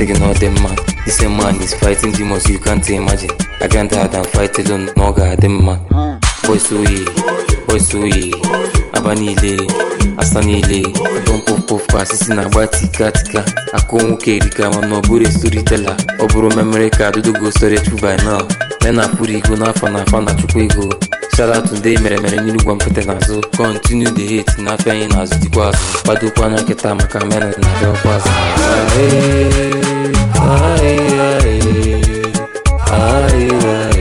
taking all them man. This same man is fighting demons you can't imagine. I can't hide and fight alone, no god them man. Boys so ye, boys so ye, aba niile, asa niile. Don puff puff kwa sisi na agba tika tika. Akụ nwoke erika mana ọ bụrụ storyteller. Ọ bụrụ memory card story storage by now. Nena pụrụ ego n'afọ n'afọ na chukwu ego. Shout out ndị mere mere n'iru gwa mkpete n'azụ continue the hate na-apịa anyị n'azụ dịkwa azụ kwadokwa anya nkịta maka menụ na-abịa ọkwa azụ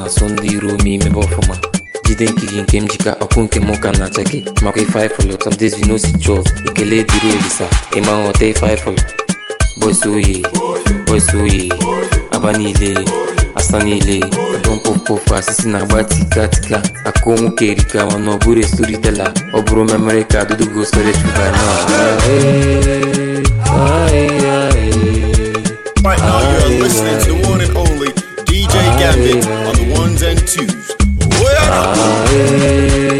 na-asụ ndị iro m imebe ọfụma jide nkiri nke m jika ọkụ nke m na-acha gị makwa ife ifụlụ tọdezinosi chọọ ekele dịrị olisa ife ifụlụ bọs oye bọs oye aba niile asa niile dompopopụ asịsị na-agba akụ nwoke erikawa na ọ ọ bụrụ ka Right now, and twos. Oh, ah,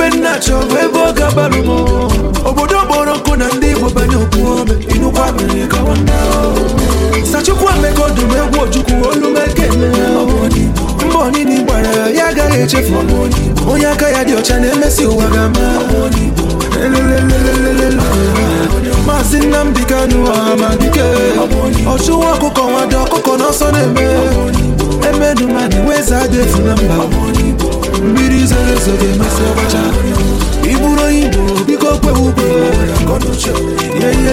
ife nnachi ọbụ ebe ọ ga-abalụ m obodo kpọrọ nkụ na ndị igbo banye okwu ome inukwa mere gawa sachukwu emeka ọdụm egwu ojukwu olumeke mba onini gbara ya ya agaghị echefu onye aka ya dị ọcha na-emesi ụwa ga-ama maazị Nnamdi Kanu amadike ọchụwa ọkụkọ nwado ọkụkọ n'ọsọ na-eme emedu mmadụ wee zaa efu na mba izere so ga ọbacha ị bụrụ onye igbo biko kwewe ugbo ihe ihe ihe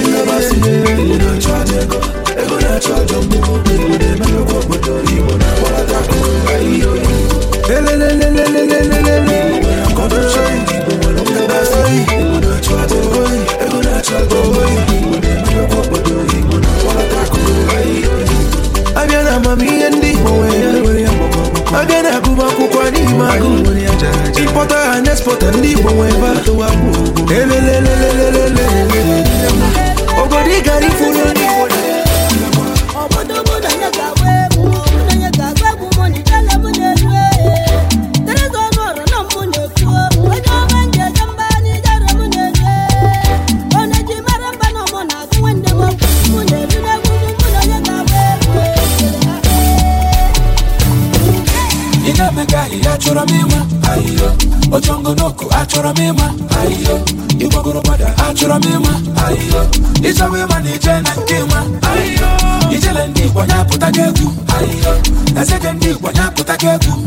abịa na amamihe ndị igbo mana ime agụ nwere ya ha na ndị igbo nwe ebe obodo ị gara ifuru chọrọ m ịma ịgbagoro gbada achọrọ m ịma ịchọwa ịma na ije na nke ịma ijele ndị igbo ya apụtago egwu na sekendị igbo ya apụtago egwu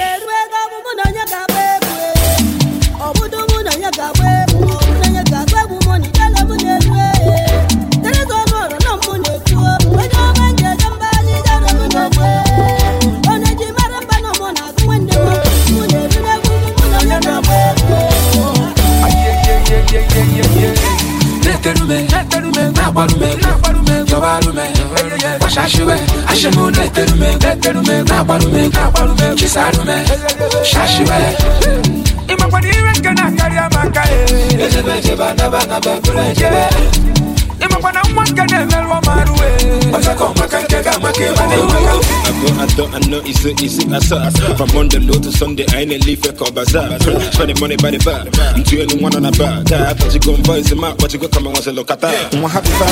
na-eterume na-agbarume jọbarume gbachashiwe ashimu na-eterume na-eterume na-agbarume na ire nke na-akarị amaka ejebe ejebe anaba anaba ịmakwana nwa nke Atọ anọ ise ise asaa From Monday to Sunday I ain't leave ka Spend money by the bar Ntu elu nwa na bar Taa akpọchigo mba isi ma akpọchigo kama nwasị lọkata Nwa ha bụ faa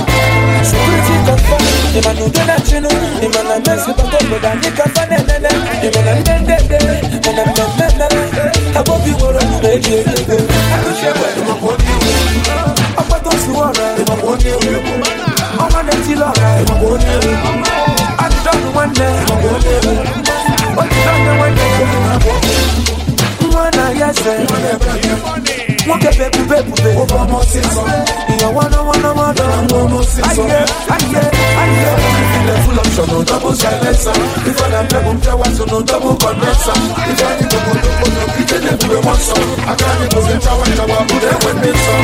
Imana ugena chinu Imana mesi bakoboda Nikafa nenene Imana mendede Imana mendede Abo biworo Meji ego Akushewe Imakwoni Akwato siwara Imakwoni Ọmọ de ti lọ́ra Imakwoni Adidọ́nu wẹ́ndẹ̀ Imakwoni Otidọ́nu wẹ́ndẹ̀ Imakwoni Nwa na yẹsẹ̀ Imakwoni nwoke bụ ebube ebube ihe wana wana wana full option no double silencer ife na mbebụ mpịawazụ no double condenser ife anyị bụ odogbo na ike na-ebube nwasọ aka anyị bụzi nchawa nchawa ndị nsọ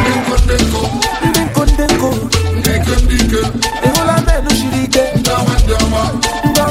ndị nko ndị nko ndị nko ike ndị ike ike ndị ọma ndị ọma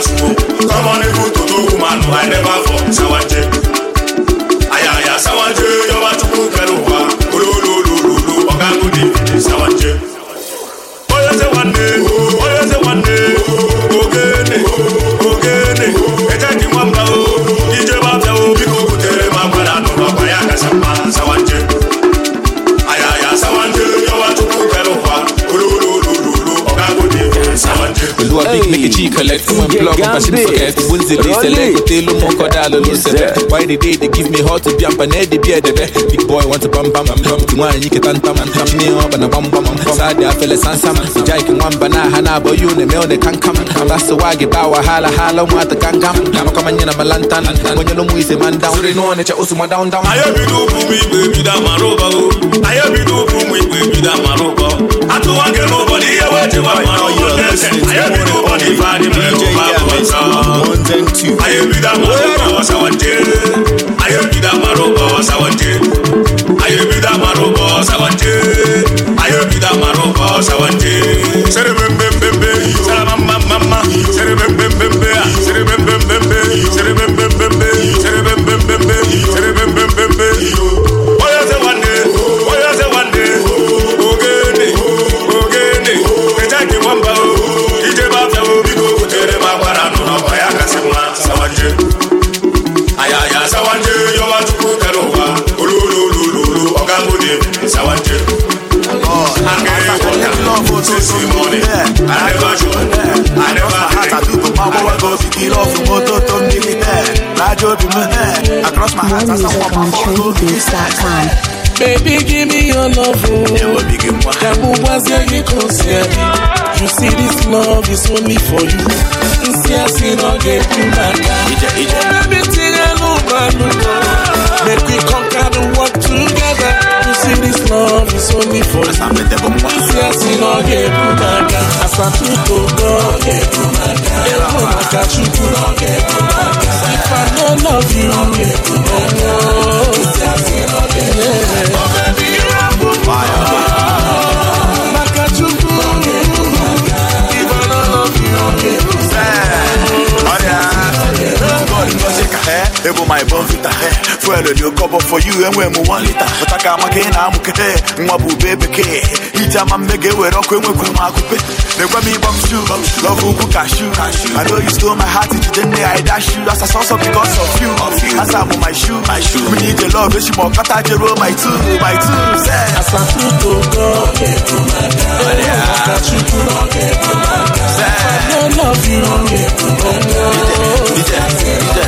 Someone who to do woman who I never for Sawaje go big make a cheek collect when plug up she forget wins the day select the lo mo ko da lo select why the day give me hot to jump and the the big boy want to bam bam bam to one you can tam tam me bam bam bam sad ya san sam jai bana hana you ne anyị ebido ụkwụ ụmụ igbo ebido amara ụkọ atụwa nke na ụbọdị ihe wejiwa mara ụkọ anyị ebido ife adị more music on TrendyBeats.com. Baby, give me your love. Oh. That will was your close You see, this love is only for you. See, I see, no get you back. Everything I know, man. make me conquer the world together. You see, this love is only for you. See, I see, no get you back. As I put the dog, get you back. Get you back. if I don't love you. Oh, yeah. ee ebu my bonvita e dị oke ọbọ for you enwe m one lita pụtaka ị na-amụkete nwa bụ bekee iji ama mme ga-ewere ọkụ enwekwu m akụpe na-egwe m ịbọm shu lọbụ ukwu kashu I know you stole my heart jide nne ya dash you as a source of because of you my shoe my shoe love my two my two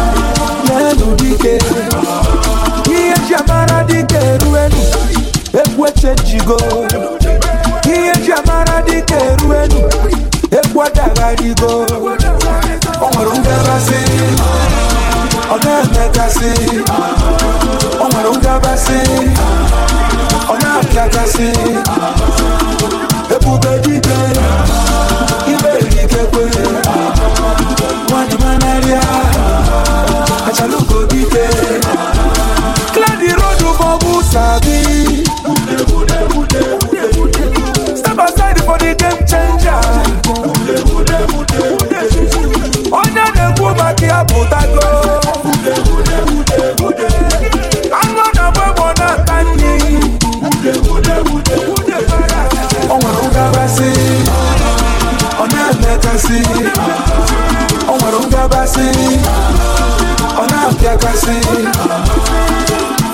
egwu echenjigo ihe ji amara dịka eru elu egwu adagharigo o nwere ngabasị ọ na-emekasị o nwere ngabasị ọ na-apịakasị ebube dike ibe ikekwe nwadị manarịa achalugo dike clear the road for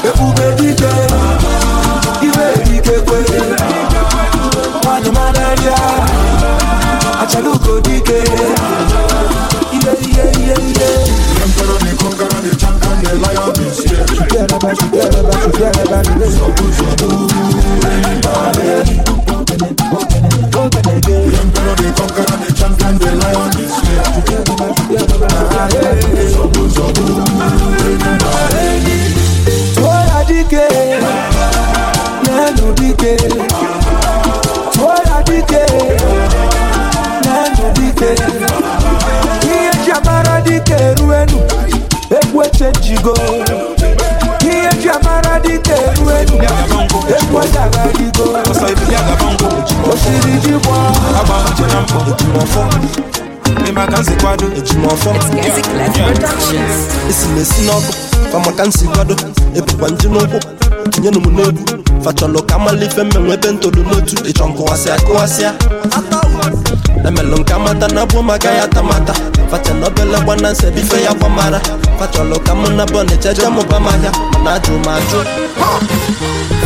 ebube dike iwe dikekwe nwanyị mara ihe ihe ihe ihe echejigo ihe ji amara dịka eru elu egwu agagharịgo osiri ji gbọọ ịmaka nsi kwado ejimọfọ esi na-esi n'ọkụ famaka nsi kwado ebukwa nje n'ụkwụ tinyenụ m n'egwu fachọlụ ka mala ife mmenwe ebe ntolu n'otu ịchọ nkụwasịa kụwasịa emelụ nke na bụ maka ya tamata fachọrọ obele gbananse bife ya gwamara fachọrọ ka mụ na bọnịcha je mụ m ahịa mana ajụ m ajụ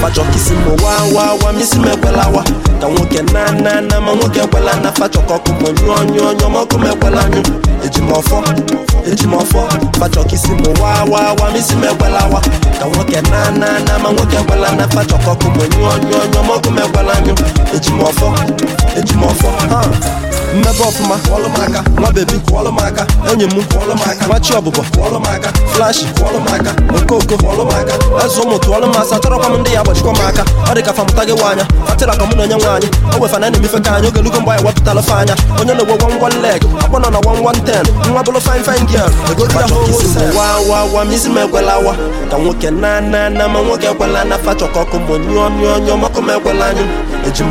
fachọ kisi m wa wa wa misi m ekwelawa ka nwoke na na na ma nwoke ekwela na fachọ ka ọkụ m nyụọ nyụọ nyụọ ma ọkụ m ekwela nyụ eji m ọfọ eji m ọfọ fachọ kisi m wa wa wa misi m ekwelawa ka nwoke na na na ma nwoke ekwela na fachọ ka ọkụ m nyụọ nyụọ nyụọ ma ọkụ m ekwela nyụ eji m ọfọ eji m ọfọ mmebe ọfụma nwa bebi onye m machi ọbụbọ flashi okoko azụ ụmụ tụọlụ m asa chọrọkwa m ndị ya agbachikwa m aka ọ dị ka famụta gị nwaanya atịra ka mụ na onye nwaanyị o wefana na emefe ka anyị oge lugo mgbe anyị wepụtala fe anya onye na-egwe wan wan leg akpọ nọ na wa wan ten nwa bụrụ fin fine girl egodia howa misi m ekwelawa ka nwoke na na na ma nwoke ekwela na fa chọkọ ọkụ mgbe nyụọ nyụọ nyụọ makụ m ekwela anyụ eji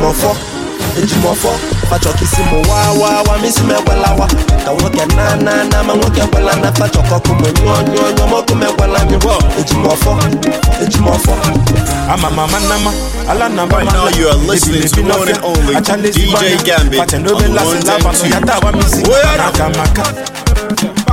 ejimọfọ fachọkisi m wa wa wa misi m wa ka nwoke na na na ma nwoke ekwela na fachọkọkụ m nyụọ nyụọ nyụọ mọkụ m ekwela nyụọ ejimọfọ ejimọfọ ama mama nama ala na mama na ebi ebi n'ofe achale si gbana pàtẹ n'obe lasị labanụ ya tawa misi na akamaka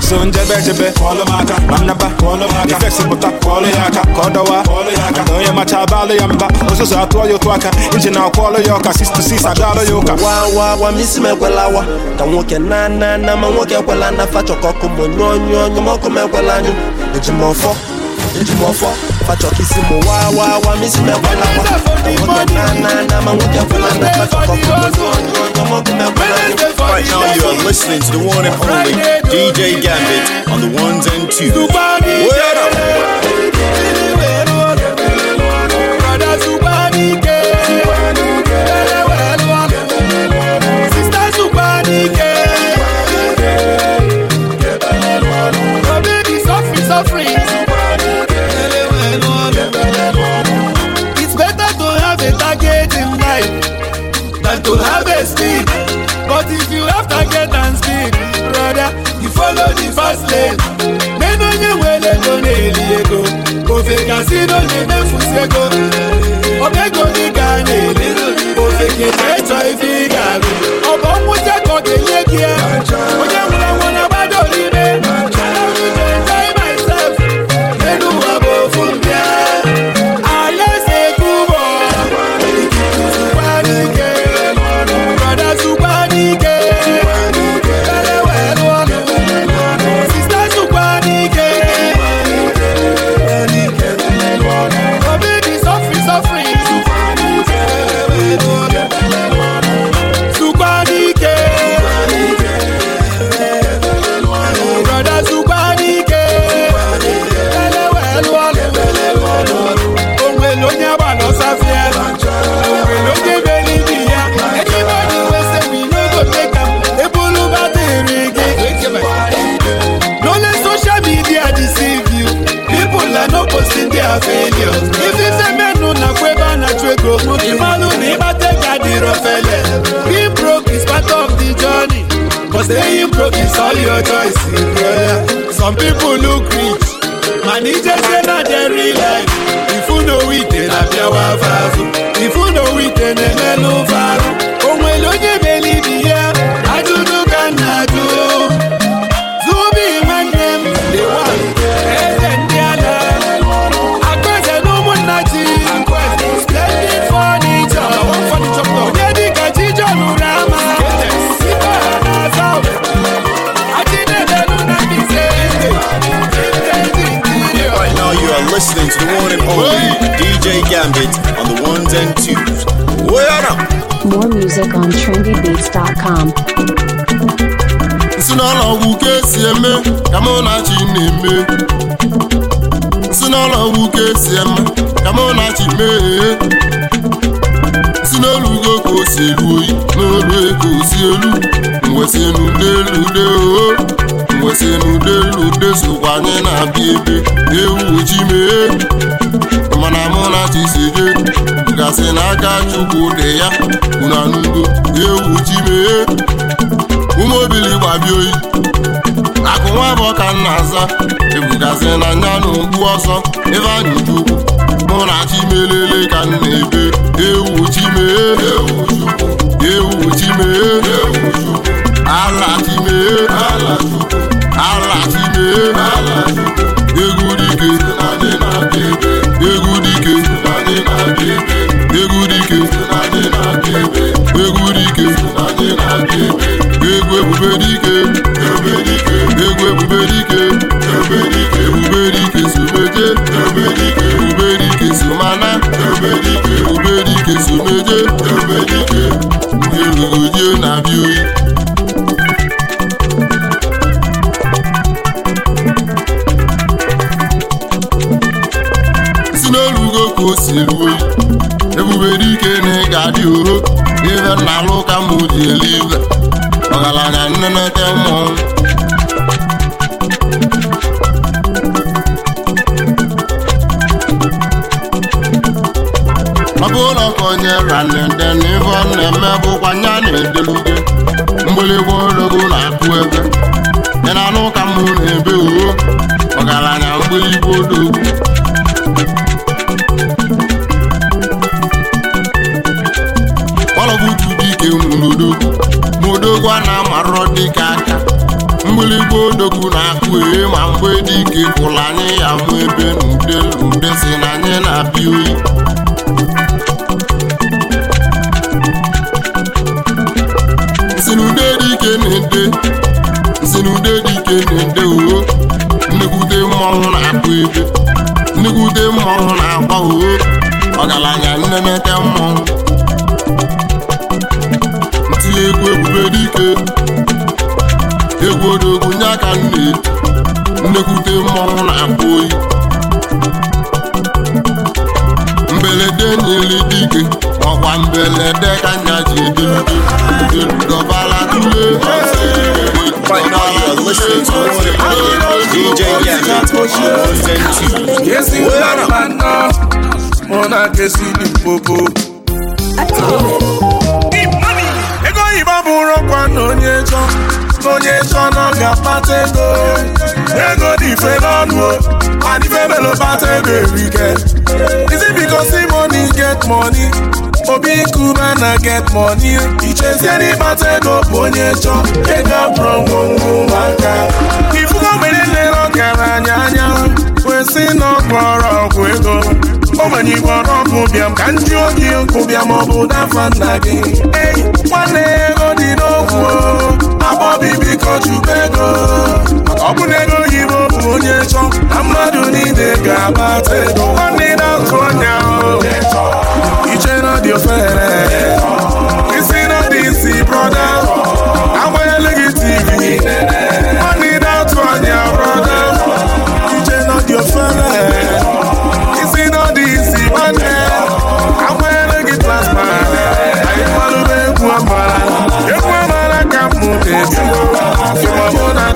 so njebe jẹ́ jebe jẹ́ bẹ́ẹ̀ kọ́lọ́maka manaba ifeksipụta kwọọlụ ya aka ọ dọwa maka onye macha abalụ ya mba ụzụzụ atụọ ya otu aka iji na akwọọlụ ya ọka 66 adalụ ya ụka wa misi m ekwelawa ka nwoke na na na ma nwoke ekwela na fachọkọkụ monyụ onyụ onyụ mọkụ m ekwela anyụ njimɔfɔ fatsɔkisi mo wawawa misi mɛkɔla wa ɔmɔdɔnanana mamudiyakɔlana fatsɔkɔkɔ Right now, you are to the one and only DJ Gambit on the ones and twos. E si n'oge m'efu si ego staying broke is all your choice yeah. some people look rich man e just say na their real life if you know it na be afọ azụ if you know it na-emelụ varụ o nwere one only DJ Gambit on the ones and twos. Where ọrụ More music on trendybeats.com. Nsị n'ụlọ ọgwụ ka esi eme kama mụ na chi na-eme. Nsị n'ụlọ ọgwụ ka esi eme ka mụ mee. o si oyi ego si elu. Mwesị elu mgbụsị na udelude sokwa anyị na-abịa ebe ewu ji mee mana mụ na chiseje gasị n'aka chukwu dị ya unanugo ewu ji mee ụmụobili gbabia oyi akụ nwa bụ ọka nna aza ebugazi na nya na ọsọ ebe anyị chukwu mụ na chi melele ka m na-ebe ewu ji mee ewu ji mee alatime alatime egwu dike na-etili egwu ebube dike egwu odogwu nye aka nne nnekwute mmọnwụ na-akpụ oyi mberede nyere dike ọkwa mbelede ka nya ji edelude dọbara tule Mona Kesini Popo. n'onye chọ n'onye chọ nọ ga-akpata ego ego dị ife n'ọnụ and ife melo kpata ego erike isi biko because say get money obi kuba na get money ichezie n'ịkpata ego bụ onye chọ ego abụrụ ngwongwo maka ifugo mgbe niile ọ anya anya kwesị na ọ kpọrọ ọgwụ ego ogbenye igbo ọkụ bịa ka ndị oge nkụ bịa maọbụ dafa nna gị ei nwanne ego dị n'okwu agbọbi ego ọ bụ na ego bụ onye chọ na mmadụ niile ga-agbata ego nwanne na-azụ ọnya iche na dị ofere isi na dị isi brọda agbanyela gị tv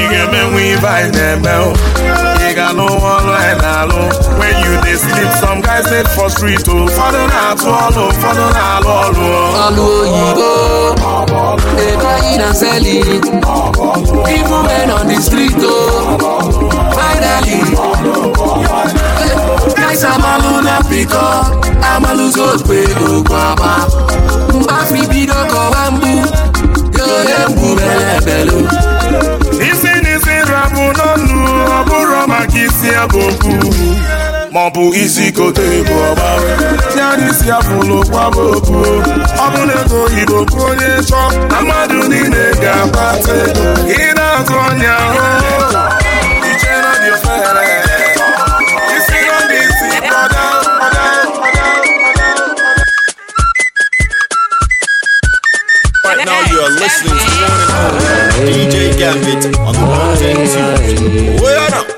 ị ga-emenwe ibe anyị na-eme ị ga-alụ nwa ọlụ anyị na-alụ when you dey sleep some guys dey for street o ụfọdụ na-atụ ọlụ ụfọdụ na-alụ ọlụ ọlụ oyibo dey buy and sell it even men on the street o finally guys amalụ na pịkọ amalụzi okpe okwu ama mgbafi bido kọwa mgbu ihe mgbu bele belu maka isi abụ okwu ma ọ bụ isi kote bụ ọgba tiara isi abụla n'okwu abụ okwu ọ bụ na ego oyibo bụ onye chọọ na mmadụ niile ga-akpata ego ị na-azụ ọnya ahụ listening to one and only DJ Gambit on the one and two. Well,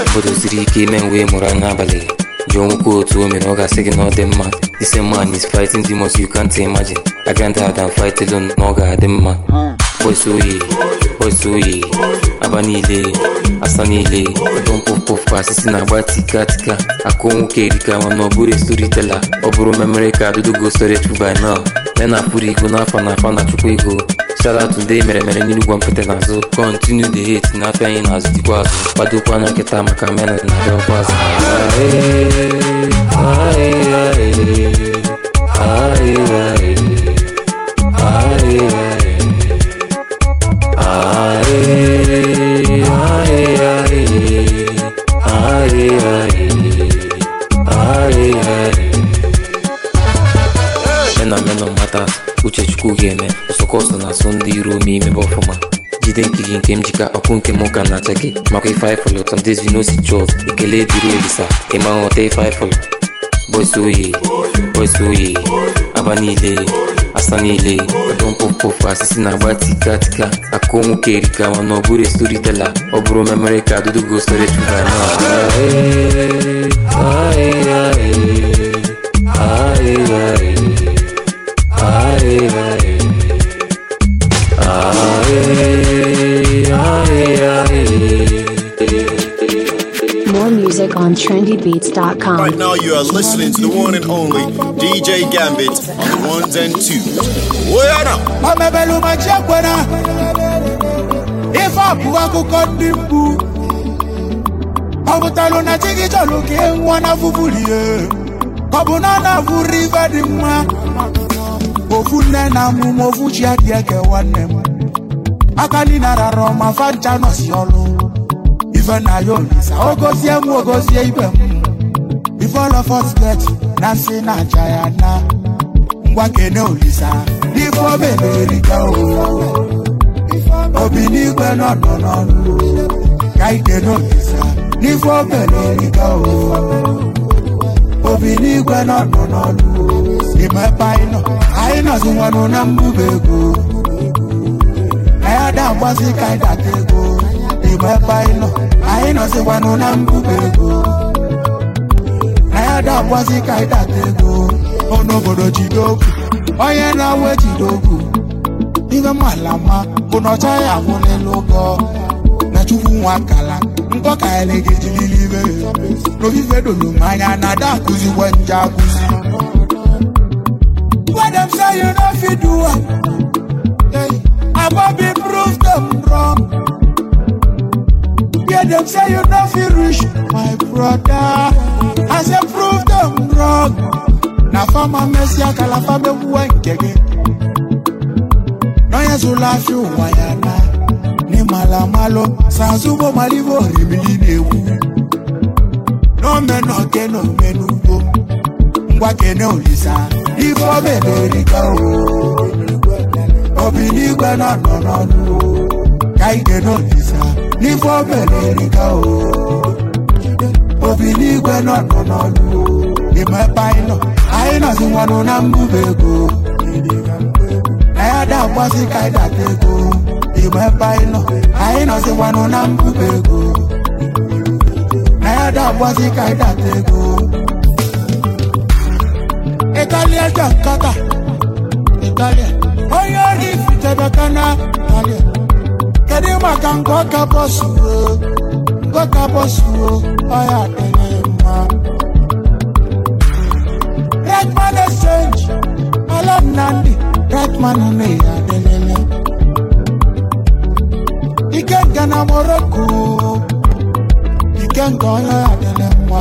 obodo siri ike ime mgbe ị mụrụ anya abalị jụọ nwoke otu o mere ọ ga-asị gị na ọ dị mma ise man is fighting demons you can't imagine I can't hide and fight na ọ ga-adị mma boys oyi ozu oyi aba niile asa niile ọdọ mkpụmkpụkwa asịsị na-agba tika tika akụ nwoke erika mana ọ bụrụ estoritela ọ bụrụ memere ka adudogo soretu by ya na-apụrụ ego n'afa na afa na chukwu ego shout ndị mere mere n'Inugwu mpete n'azụ kọntinu the hate na-apịa anyị n'azụ dịkwa azụ kwadokwa anya nkịta maka mena na-abịa ọkwa azụ ae ae ae ae ae atas uche chukwu ga-eme sọkọsọ na-asụ ndị iro m imebe ọfụma jide nke gị nke m jika ọkụ nke m ụka e na-acha gị makwa ife anyị ndị zinosi chọs ekele dịrị elisa ịma nghọta ife anyị fọlọ bọsị oye bọsị aba niile asa niile ọdọ mkpọmkpọfụ asịsị na-agba tika tika akụ nwoke erika ma na ọ bụrụ estoritela ọ bụrụ memere ka adudugo sore chuga na ahịa ahịa ahịa on trendybeats.com. Right now, you are listening to the one and only DJ Gambit on ones and two. Oyana! Amebelu machiakwena Ife abụọ akụkọ ndị mkpu Ọ na chi gị chọrọ ka na fufulie Ọ na mma Ofu nne na amụma ofu chi adị eke nwanne m Aka ọma fancha nọsi ọlụ ife na ya olisa m ibe m ife all of us na nsị na aja na ngwa kene olisa n'ife o mebiri ka o obi n'igwe n'ọnọ ka ikene olisa n'ife o mebiri ka obi n'igwe n'ọnọ n'ọnụ ime nọ na ka anyị nọzikwanụ na mbuba ego na ya daagbazi ka anyị data ego n'obodo jide okwu onye na-awụ ejide okwu ihe mala mma bụ na ọcha ya abụ n'elu ụgọ na chukwu nwa akala nkọ ka anyị na-ejiriri ibe n'ofife dolu m anya na ada akụzikwa nje akụzi Madam say you no fit do am. Hey, I won't be proof them wrong. dem say you no fit reach my broda i say prove dem wrong na fama mesi akalafa mekwuwa nke gị n'onyezula fi ụwa ya na n'ịmalamalụ sazugbo malibu orimili na-egwu n'omenoke na omenugbo ngwa kene olisa ife omeberika obi n'igwe nọ na n'ọnụ ka ike n'olisa n'ikwe obere erika o obi n'igwe nọ nọ n'ọnụ imepe anyị nọ anyị nọzi na mbuba ego na ya da mgbasị ka anyị data ego imepe anyị nọ anyị nọzi na mbuba ego na ya da mgbasị ka anyị data ego Italia Jakarta Italia onye ori fitebekana Italia kedu maka nke ọka bọsuo ọka bọsuo ọya dịrị mma red man exchange alam nandi red man na ya adịlele ike nke na morocco ike nke ọya adịrị mma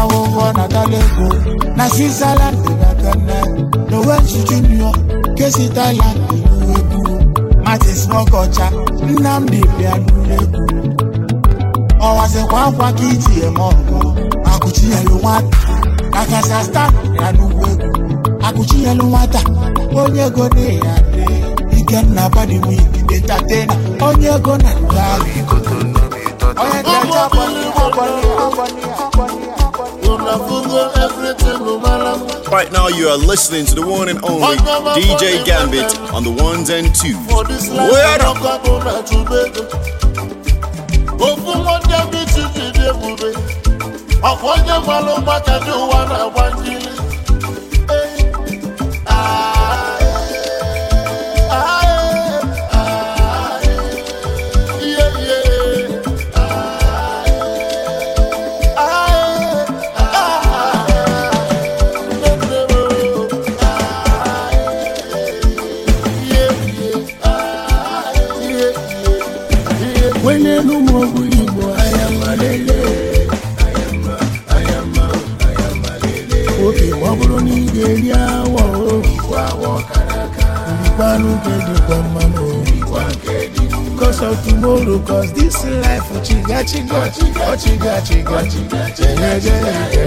ahụhụ na dalego na switzerland dịbatane nowen junior kesi thailand ilu ebu martin smoke ọcha Nnamdi bịagburu egwu ọwazikwa akwa ka iji eme ọgụ akụchinyelu nwata akasa sta ya n'ugwu egwu akụchinyelu nwata onye ego na ya dị Ikenna Badịwik detatena onye ego na nga onye ego. bọni ya bọni ya bọni ya Right now, you are listening to the one and only DJ Gambit on the ones and twos. Word up. Ah. sorrow cause this life chiga chiga chiga chiga chiga chiga chiga chiga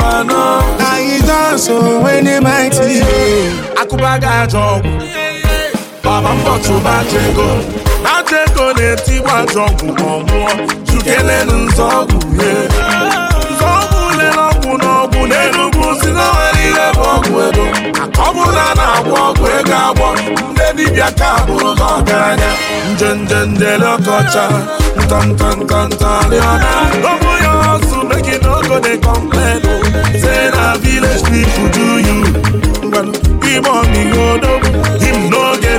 uh weni Akubaga jogu. baba ego na-etigbu ajọ ọgwụ ma ọ nwụọ chukelenu nzọọgwụ ye nzọọgwụ lere ọgwụ n'ọgwụ n'enugwu si na nwere ihe bụ ọgwụ ego akọbụla na-agwọ ọgwụ ego agwọ ndị ka bụrụ na ọgaranya ya oh. say na village people do you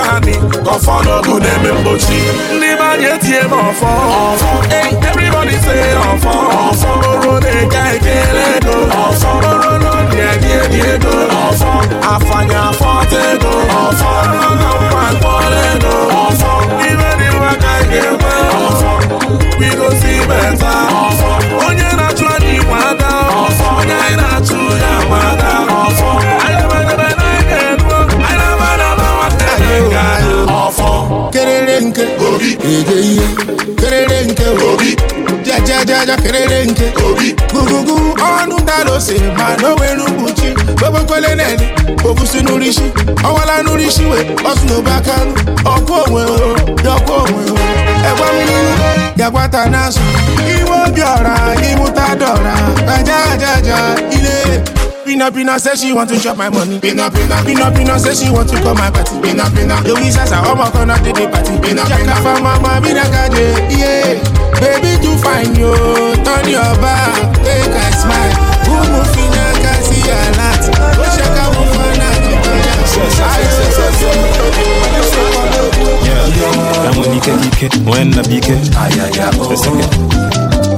ọcha anị ọfọ n'ogu na-eme mgbochi ndị be anyị etie m ọfọ ọfọ ọfọ oro na-eke ekele ego ọfọ oro ebi ebi ego ọfọ ego ọfọ mkpọrọ ego ọfọ dị nwa ka anyị ga-ekwe ọfọ bigosi meta ọfọ onye na-achụ anyị nwa ada ọfọ onye anyị ede ihe kerere nke obi jajajaja kerere nke obi gugugu ọnụ dara ose ma na onwere ukwuchi gbobokwele nene ogusi n'urisi ọwala n'urisi we ọsụ n'obe aka ọkụ onwe o dọkụ onwe o ẹgbẹ mmiri yagbata n'azụ iwe obi ọra ịmụta dọra ajajaja ile Pina Pina say she want to chop my money. Pina Pina Pina Pina say she want to call my party. Pina Pina Louis as a homo gonna do the party. Pina Pina for mama Pina Kade yeah. Baby too fine yo, turn your back, take a smile. who Umu Fina kasi alat, Oshaka Mufana Kibaya. Yeah, yeah. That money can be kept when the big. Ah yeah yeah. Oh.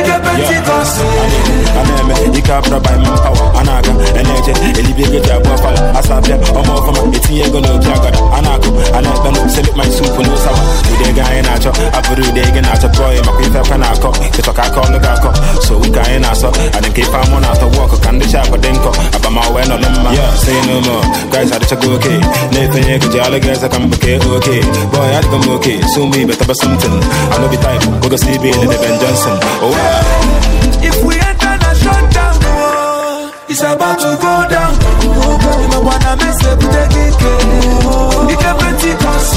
ife pentikọst ana eme ike abụrụ by man power a na-aga na-eje elibi ego ji abụọ fala asapịa ọma ọfọma etinye ego na oji agara a na-akụ a na-ekpe na na ụsawa ego anyị na-achọ abụrụ na pụọ ya ife akwa na-akọ ịchọ ka aka akọ so wike anyị na-asọ amụ na ka ndị nkọ mma ibe It's about to go down. Ịma bute gị ike. Ike Pentikọst.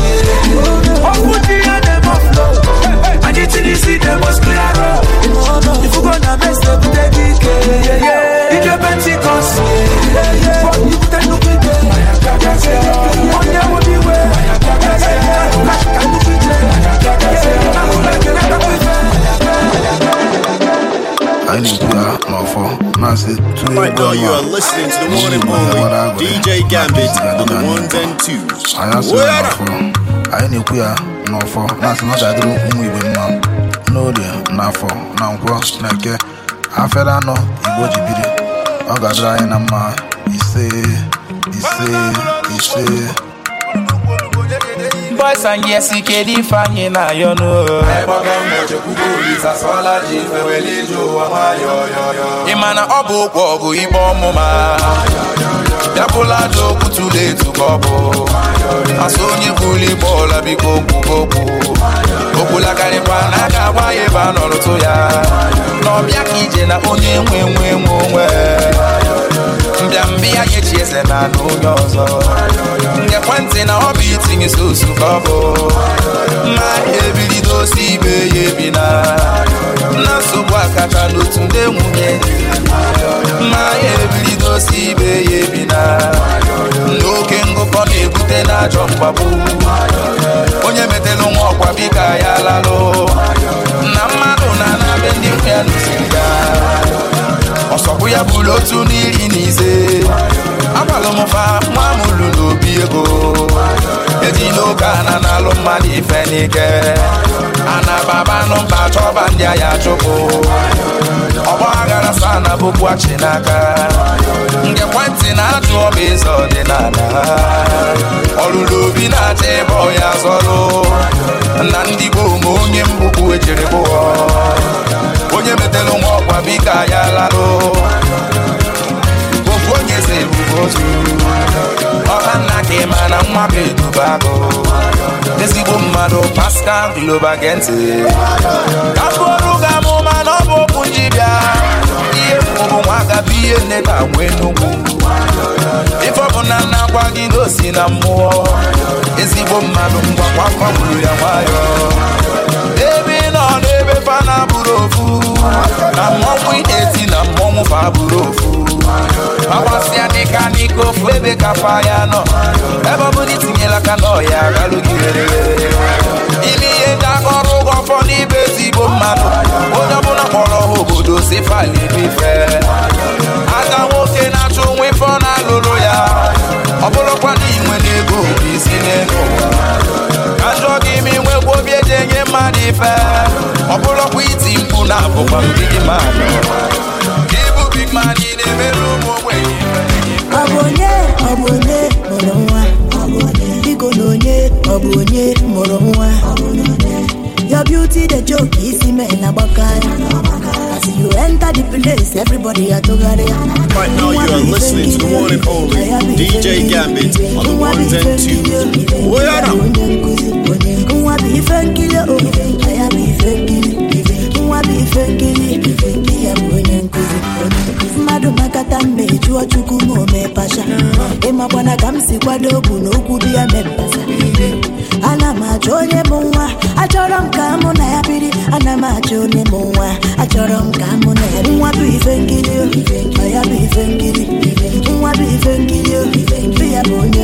Ọkụ dị ya na-eme Anyị tiri isi na-eme clear road. na mese bute gị ike. Ike Pentikọst. Ajiga Mofo you are listening to the one and DJ Gambit the ones and twos. Anyị na-ekwu ya n'ọfọ na-asị na ọ ga-adịrị ụmụ Igbo mma n'orie n'afọ na nkwọ na eke afere anọ Igbo ji biri ọ ga-adịrị anyị na mma ise boys and yes ike ife ifeanyị na ayọ n'ụlọ ịma na ọ bụ ụkwụ ọgụ igbe ọmụma bịapụla aja okwu ọ bụ asụ onye bụrụ igbe ọla biko okwulakarịkwa na a ga ebe a ya na ọbịa ka ije na onye nwe nwe nwe onwe mbịambịa chi echieze na anụ onye ọzọ ngekwentị na ọ bụ itinye sosu ka ọ bụ mmanya ebilido osi ibe ya ebina na nsogbu akacha n'otu ndị nwunye mmanya ebilido osi ibe ya ebina n'oke ngụkọ na-ebute n'ajọ mgbagbu onye metelu nwa ọkwa bika ya lalụ na mmadụ na-anabe ndị nwe ya n'osiri ya ọsọkwụ ya bụrụ otu n'iri na ise m nwa m lụ n'obi ego ejila oke na-alụ mmadụ ife n'ike ana baba nụmba chọba ndị agha chụpụ ọgba aghara sa na achị n'aka nke ekwentị na-ajụ ọba eze ọdịnala ọlụlụ obi na-acha ịbọ ya zọlụ na ndị gboo ma onye mbụ bụ ejere onye metelu nwa ọkwa bika ya mmadụ Pascal Globa gee ntị kapụrụ ga amụma na ọ bụ okwu bịa ihe mụrụ nwa agaba ihe nebe agwa enugwu ife ọ na nna gwa gị gosi na mmụọ ezigbo mmadụ mgwakwakwaburu ya nwayọ ebe ị nọ n'ebe Fana na abụrụ ofu na mmọnwụ ezi na mmọnwụ fa buru ofu agbasịa dịka n'iko ofu ebe ka pa ya nọ ebe ọ bụla itinyela aka n'ọya galụgị ime ihe ndị aka ọrụ ụgwọ fọ n'ibe ezigbo mmadụ onye ọbụla kpọrọ ha obodo si fali bife aka nwoke na achọ nwa ọ na-alụrụ ya ọ bụrụkwa na inwe n'ego isi n'ego ajọ gị ime nwekwa obi eji enye mmadụ ife ọ iti mpu na abụkwa mgbidi mmadụ mma na ị na-emere ụmụ ogbenye ọ bụ onye ọ bụ onye mụrụ nwa biko onye ọ bụ onye mụrụ nwa Your beauty dey joke isi mee na gbakara As you enter the place, everybody are tụgharịa. Right now, you are listening to the one and DJ Gambit on the ones and twos. We are now. Nwa bi ife nkiri ife nkiri, nwa bi ife nkiri. mmadụ makata mmejụọ chukwu ma ome mepacha ịmakwana eh, ka m si kwado n'okwu dị ya mepasa ana m achọ onye bụ nwa achọrọ m ka mụ na ya biri ana m achọ onye bụ nwa achọrọ m ka mụ na ya nwa bụ ife nkiri ya bụ ife nkiri nwa bụ ife nkiri ya bụ onye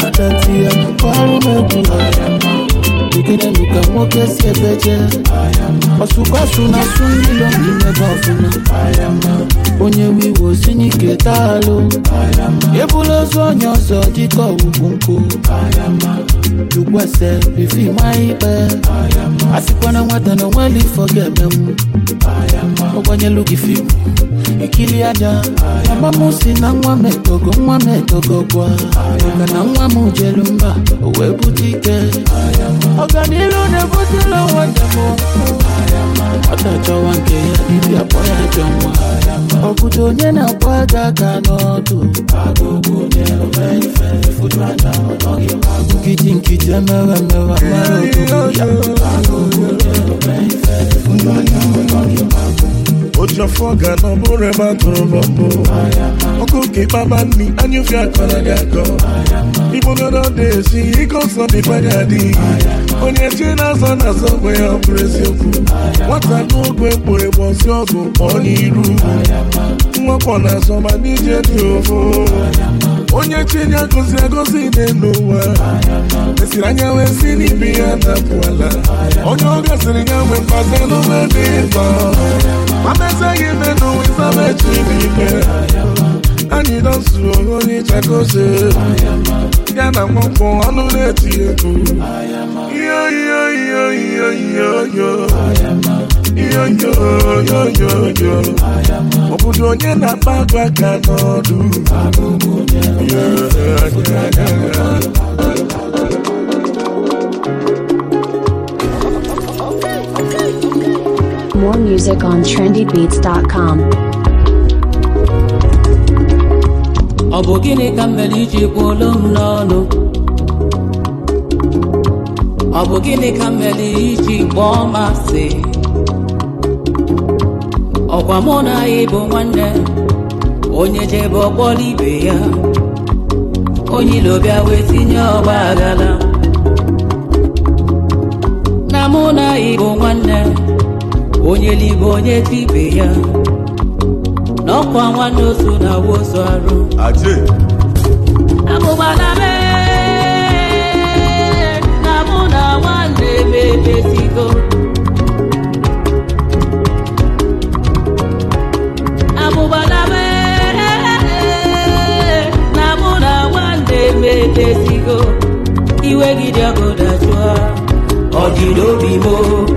chanti ya kukwalumegula ikinemika mwokesebeje ọsụkọsụ na sụndilo n'imebe ọfụma onye wiwo sinyike taalụ ebula ozu onye ọzọ dịka ọgwụgwụ nkụ jukwese bifima ikpe nwata na onweli ifọ ọgbanyelu gị fimu ekiri aja mama m si na nwa m nwa m gwa na nwa m jelu mba o wee bute ike ọganilu na-ebutela onwe demo ọta chọwa nke ya dibịa kpọ ya ajọ nwa onye na-akpọ aga aka n'ọdụ nkiti nkiti emewe mara ya ojọfọ ga na ọbụrụ ebe a tụrụ bọmbụ ọkụ oke kpaba nni anyụfe akọrọ ga-agọ. akọ igbogoro dị esi ike ọsọ dịkwa gị adịghị onye chie na-azọ na-azọ gwe ya ọ bụrụ eziokwu nwata n'oge mkpụrụ egbo ọsị ọgụ kpọọ n'iru nwakpọ na-azọ ma n'ije dị ofu chenya agụzi agụzi dị n'ụwa esiri anya wee si n'ibi ya napụala onye ọ gasịrị ya nwee mkpazi n'ume dị mkpa mana ezeghị ime n'ụwa ịsama echi n'ike anyị dọzuo onye chakoze ya na mwakpo ọnụ na-eti egwu iyo yoyoyoyo ọ obodo onye na-akpa ga ka n'ọdụ More music on trendybeats.com. Ọ bụ gịnị ka m iji iji kwuolu m n'ọnụ? Ọ bụ gịnị ka m iji kpọọ m ọkwa mụ na ya bụ nwanne onye jebe ọkpọ n'ibe ya onye ilo bịa wee tinye ọgba agala. na mụ na ya bụ nwanne onye libe onye tibe ya na ọkwa nwanne otu na awa ozu arụ abụba na mee na mụ na iwe gị dị ọgụ ọ dị n'obi m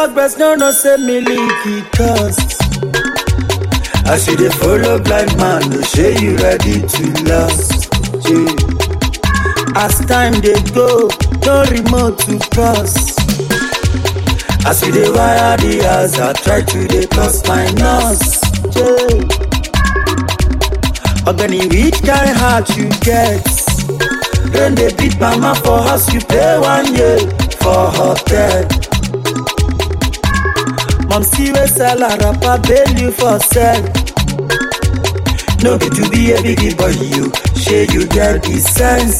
talk breast, no, no, say me leak cost. I see the follow blind man, no say you ready to last. Yeah. As time they go, no remote to cross. As we dey wire the house, I try to dey cross my nose. Yeah. Ogani, which kind heart you get? Then they beat mama for house, you pay one year for her death. see wey sell her rapper bail you for sell no be to be a biggie boy you shey you get di sense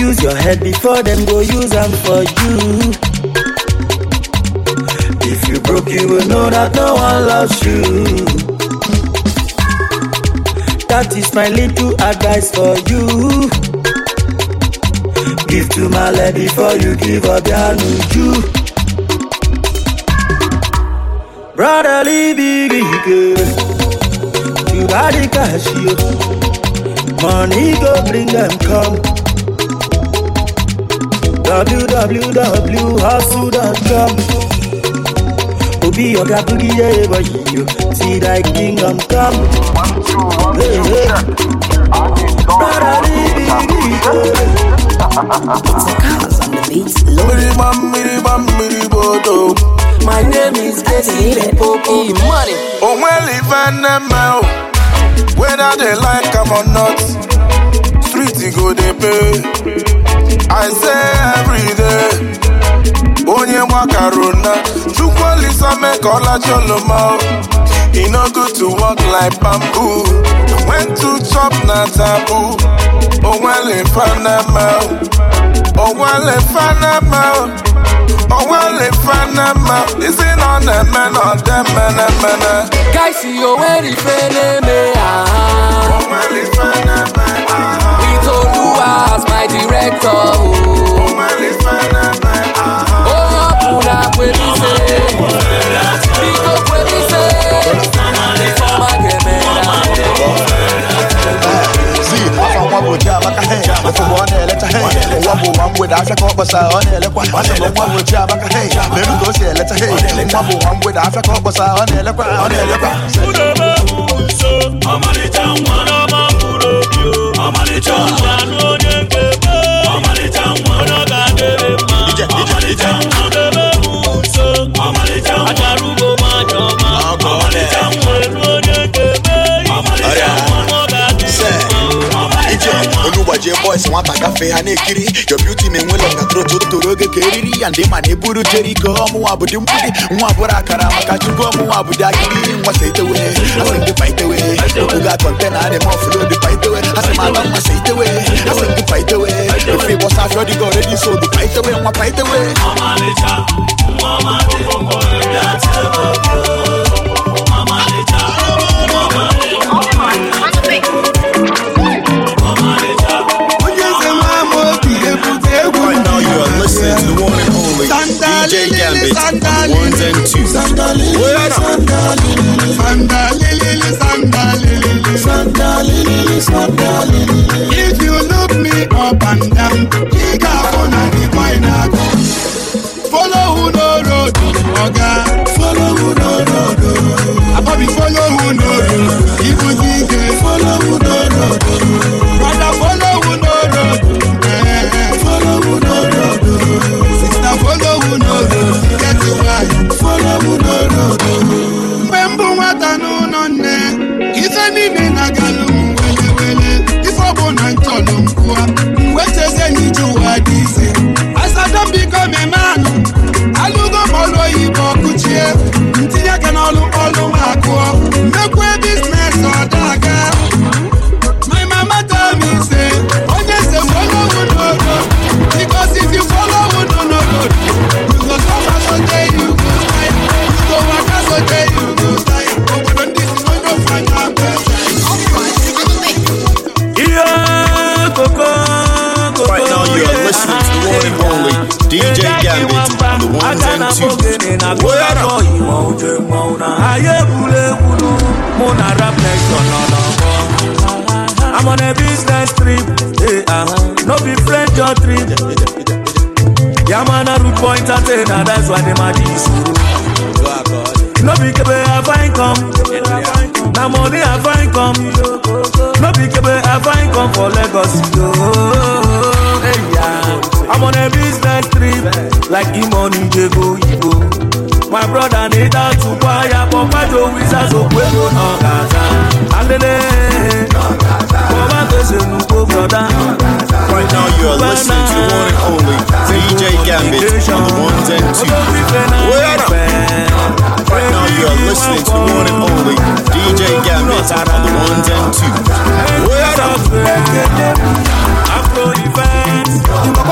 use your head before dem go use am for you if you broke you will know that no one loves you that is my little advice for you give to my lady before you give up your nuju. brotherly big You got the cash, you. Money go bring them come. www.hustle.com Obi Oga Boogie, yeah, but you see thy kingdom come. Hey, hey. Brotherly big ego. It's love. Miribam, miribam, miribodo. My name is Bessie Popo. Money. Oh, well, if I oh, whether they like them or not, street go they pay. I say every day. Onye mwakaruna, chukwalisa mekola choloma. It oh. no good to walk like bamboo. When to chop na taboo. Oh, well, if I oh. onwele fanama onwele isi na ọ na-eme na ọdị mmenemene gaisi ah. onwere ife na-eme ya ah. itoluwa as my director o hapụrụ akwelise biko say mageme ya zi afọ nwa bụ ji amaka hen ụfụgbọ ọ na-eleta hen mgbe ọ na nwa bụ Chiamaka hei leru ka o si eleta hei nwa bụ nwa mgbede asa ka ọ kpọsara ọ na-elekwa ọ na-elekwa ọmarịcha nwa n'ọma mkpụrụ obi DJ boys nwata gafee ha na-ekiri your beauty ma enwela ọgatrotụ toro oge ka eriri ya ndị ma na-eburu jeriko ọmụnwa bụdị mgbudi nwa bụrụ akara maka chukwu ọmụnwa bụdị akiri nwasa itewe asị dịpa itewe obuga kọntena adị m ọfụlụ paitewe nwa DJ Gambit, ones and twos. If you look me up and down, brother na-ede atụkwa ya kpọpajo wizaz okwedo n'ọgaza alele kpọbatozenu brother Right now you are listening to one and only DJ Gambit on the ones and twos. Right now you are listening to one and only DJ Gambit on the ones and twos.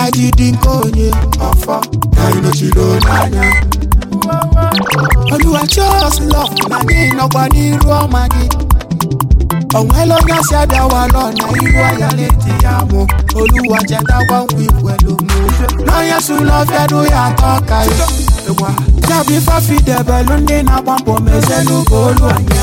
ajidi nke onye ọfọ na ịnochiri n'anya oluwa chos na gị nọkwa n'iru ọma gị onwela onye asị abịawalọ na iru ahịa na-eti ya mụ oluwa ya atọ ka ya bụ ifafidebelu na-agba anya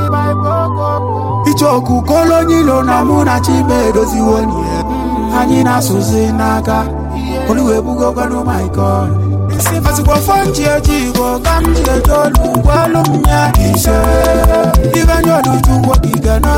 kolo kolonyilo na mụ na chibe edoziwo anyị na-asụzi n'aka oluwebugokwanụ my god sikwa fọ nji eji igbo ka m olu ise ibanye oluchukwu ige na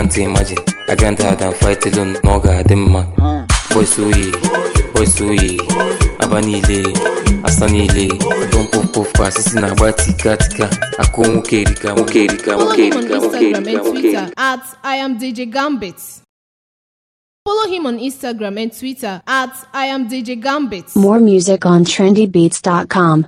can't imagine. I grind hard and fight alone, moga demma. Boy suyi, boy suyi, aba niile, asa niile. Don poof poof kwa sisi na-agba tika tika. Akụ nwoke erika, nwoke erika, nwoke erika, nwoke erika, nwoke erika. At I am DJ Gambit. Follow him on Instagram and Twitter at I More music on trendybeats.com.